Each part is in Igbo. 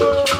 Oh.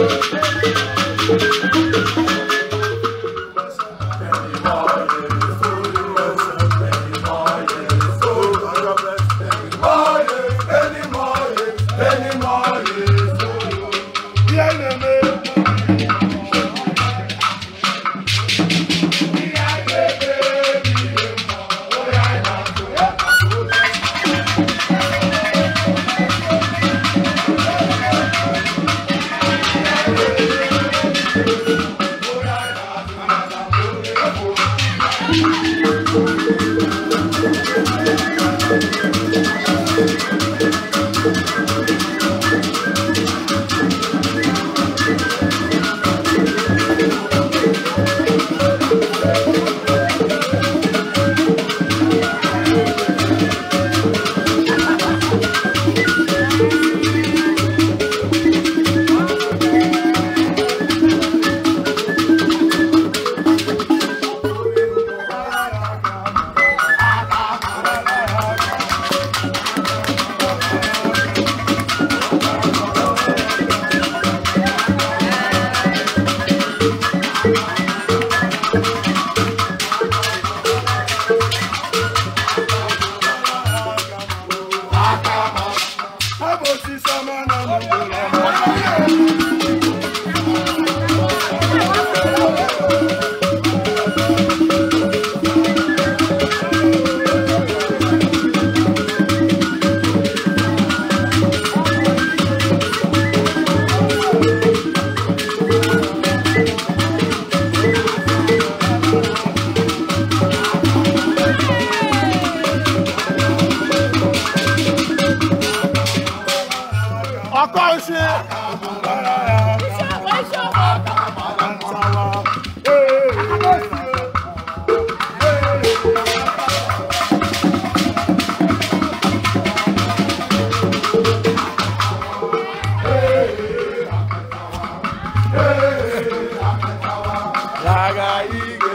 Thank you. Hey, hey, hey, hey,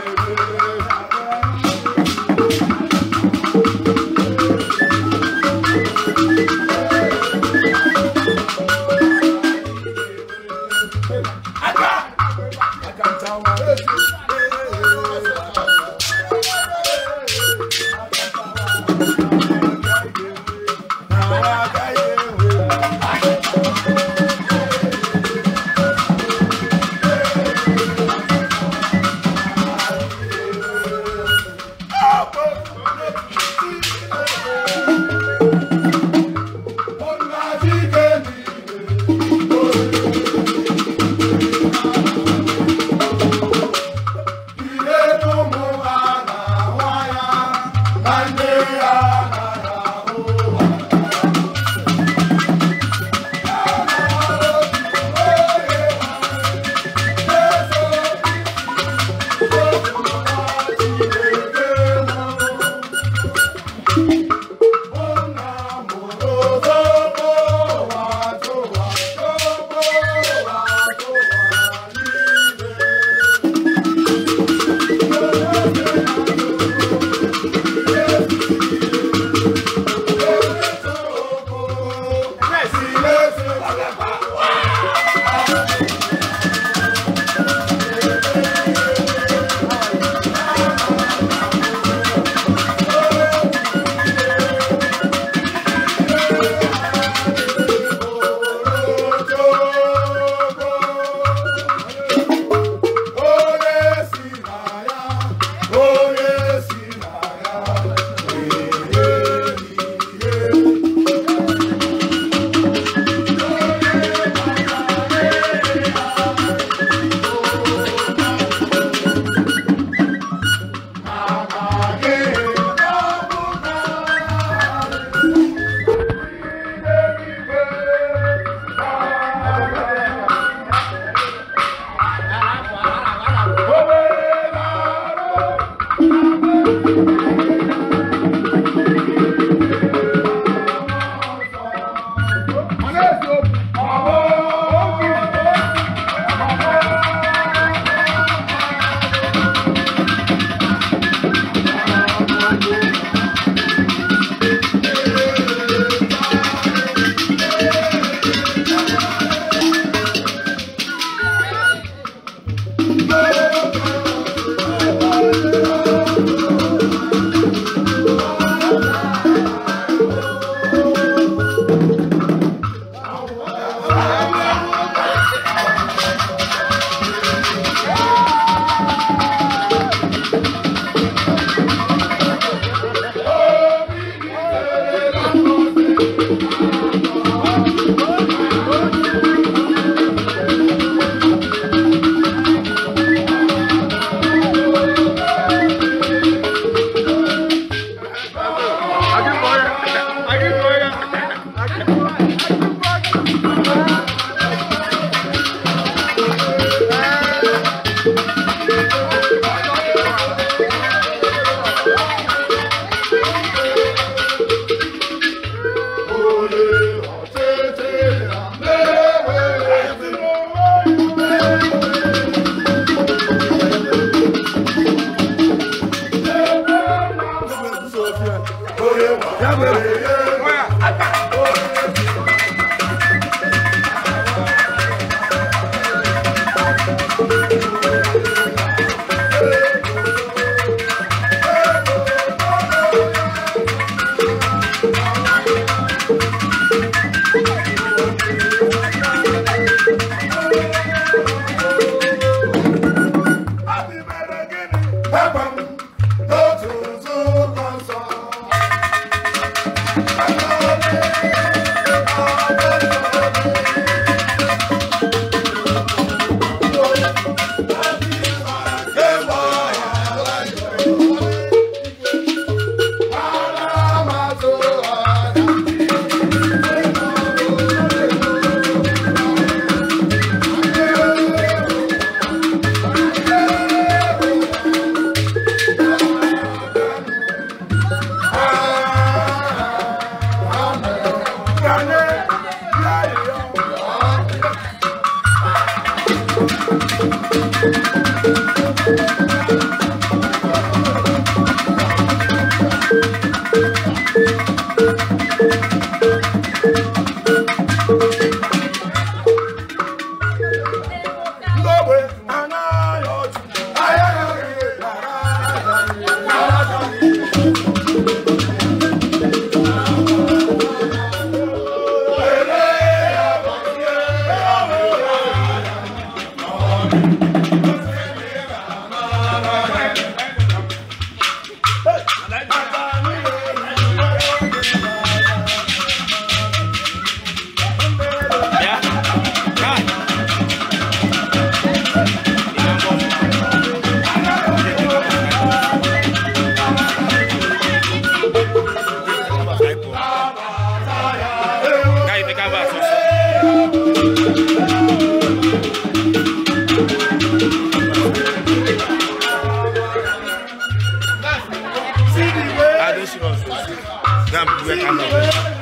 Allah'ım.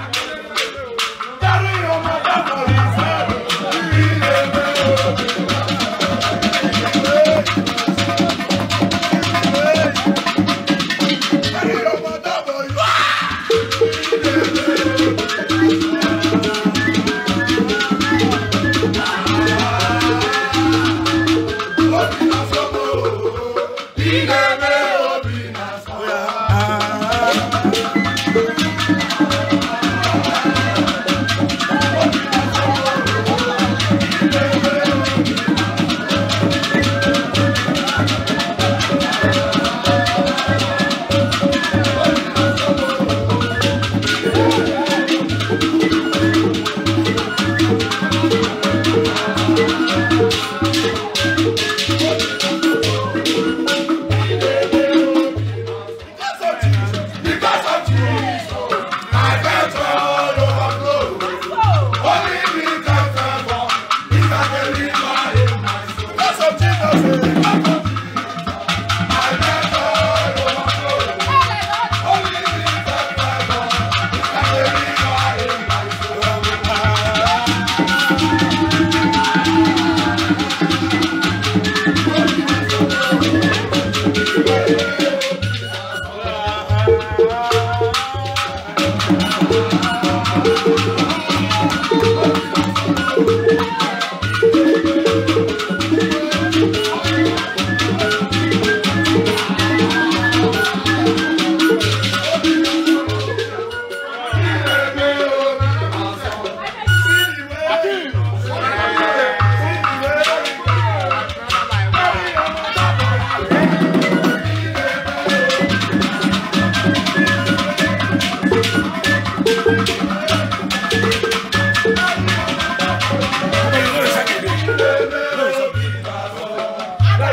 Thank you.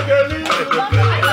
leave.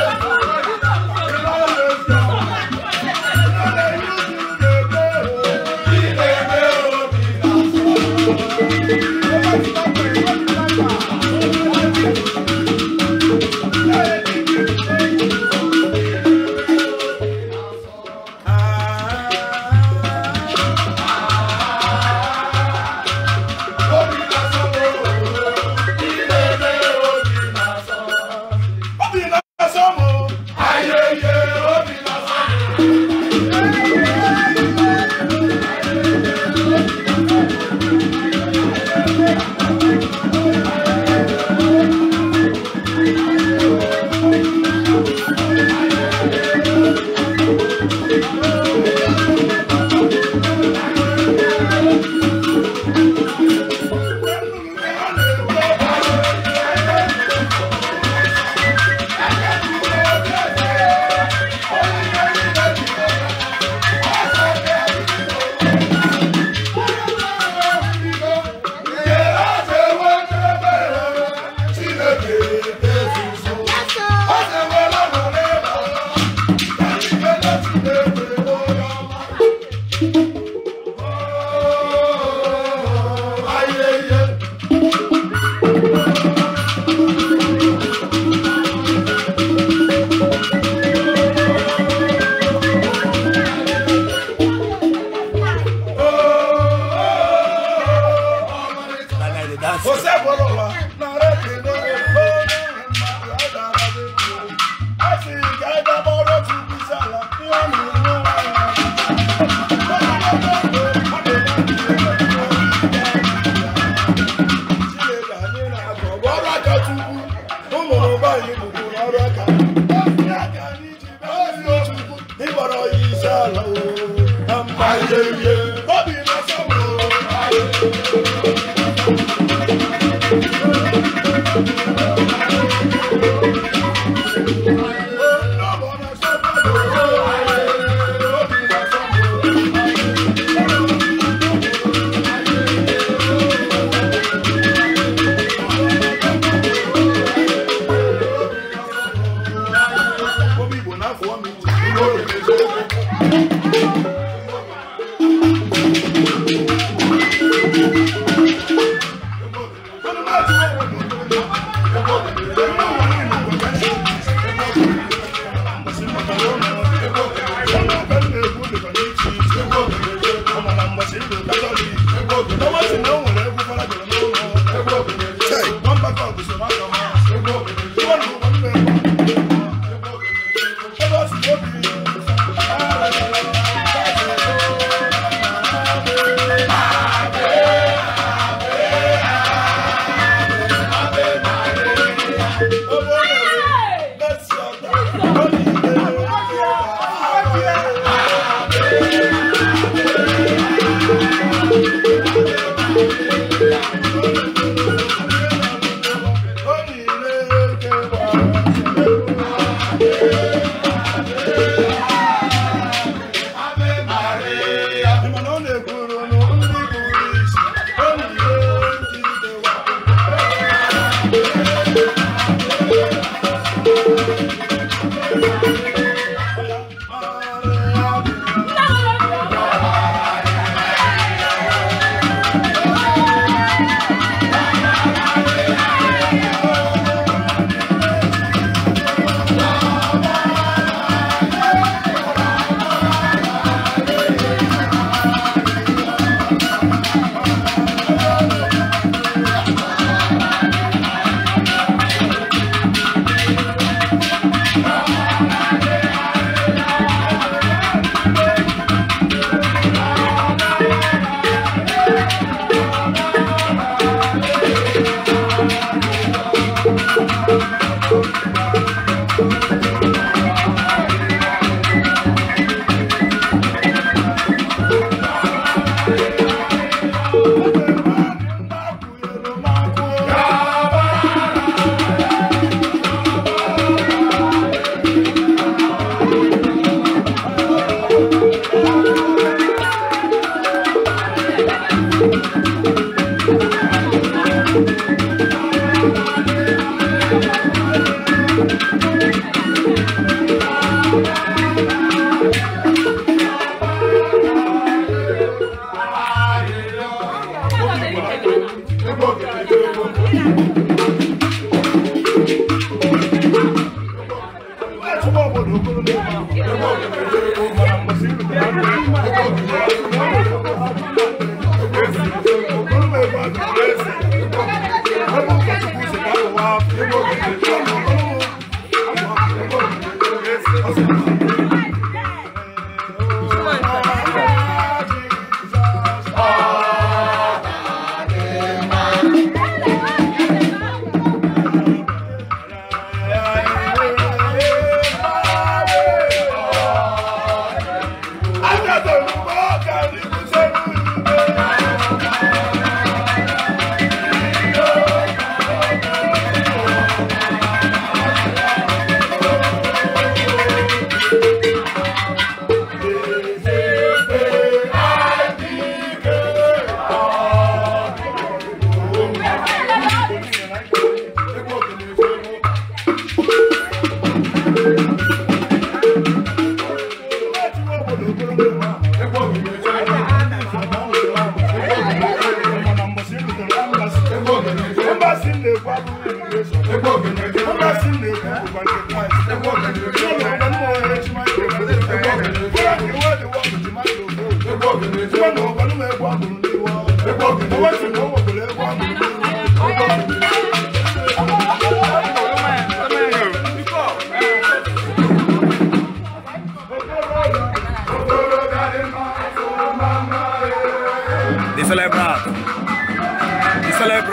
Música Thank you.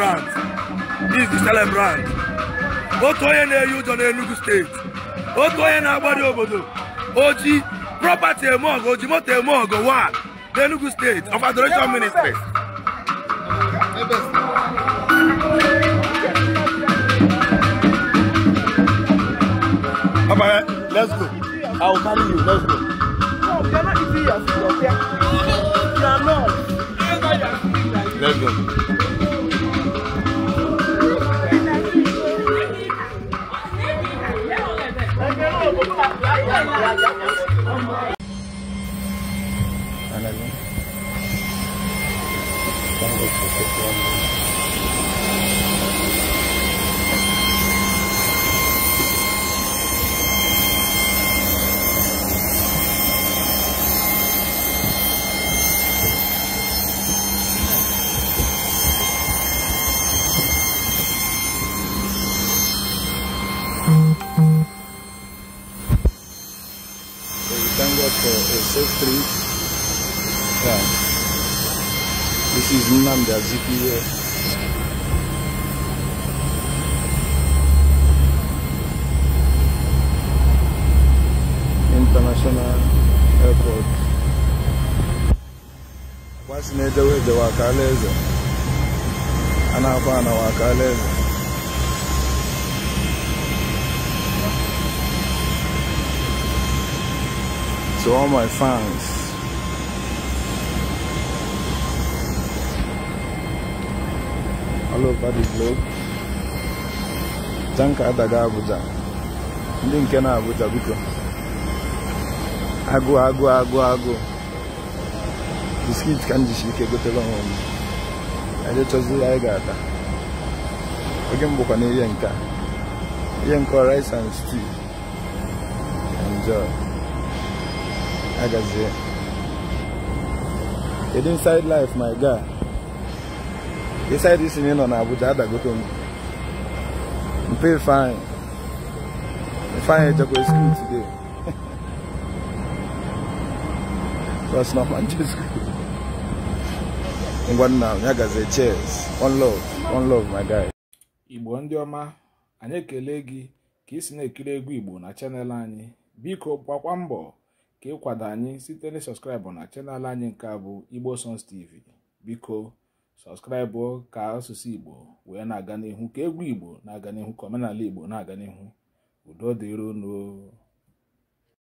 celebrant this the celebrant otu onye na-eyi ụjọ n'Enugu steeti otu onye na-agbado obodo oji property eme ọgụ oji moto eme ọgụ wa n'Enugu steeti of adoration ministry Papa, eh, let's go. I will carry you. Let's go. Let's go. Ándale. International Airport kwasị na-edewe edewe eze a na-akwa ana Ọkalaeze to all my fans all over the globe tanka adaga Abuja ndị nke na Abuja biko agụ agụ agụ agụ biskit ka m jisi ike gotela ọnwa m anyị anyị ga-ata oge m na ihe nke ihe nke rice and stew enjoy agazie kedu inside life my guy inside isi na ị nọ na Abuja adagoto m mpe fine fine ejekwa school today that's not Manchester. ngwa nna ya cheers one love one love my guy. igbo ndị ọma anyị ekele gị ka isi na-ekiri egwu igbo na chanel anyị biko gbakwa mbọ ka ịkwado anyị site na sọskraịbụ na chanel anyị nke a bụ igbo songs tv biko sọskraịbụ ka asụsụ igbo wee na-aga n'ihu ka egwu igbo na-aga n'ihu ka omenala igbo na-aga n'ihu udo dịrono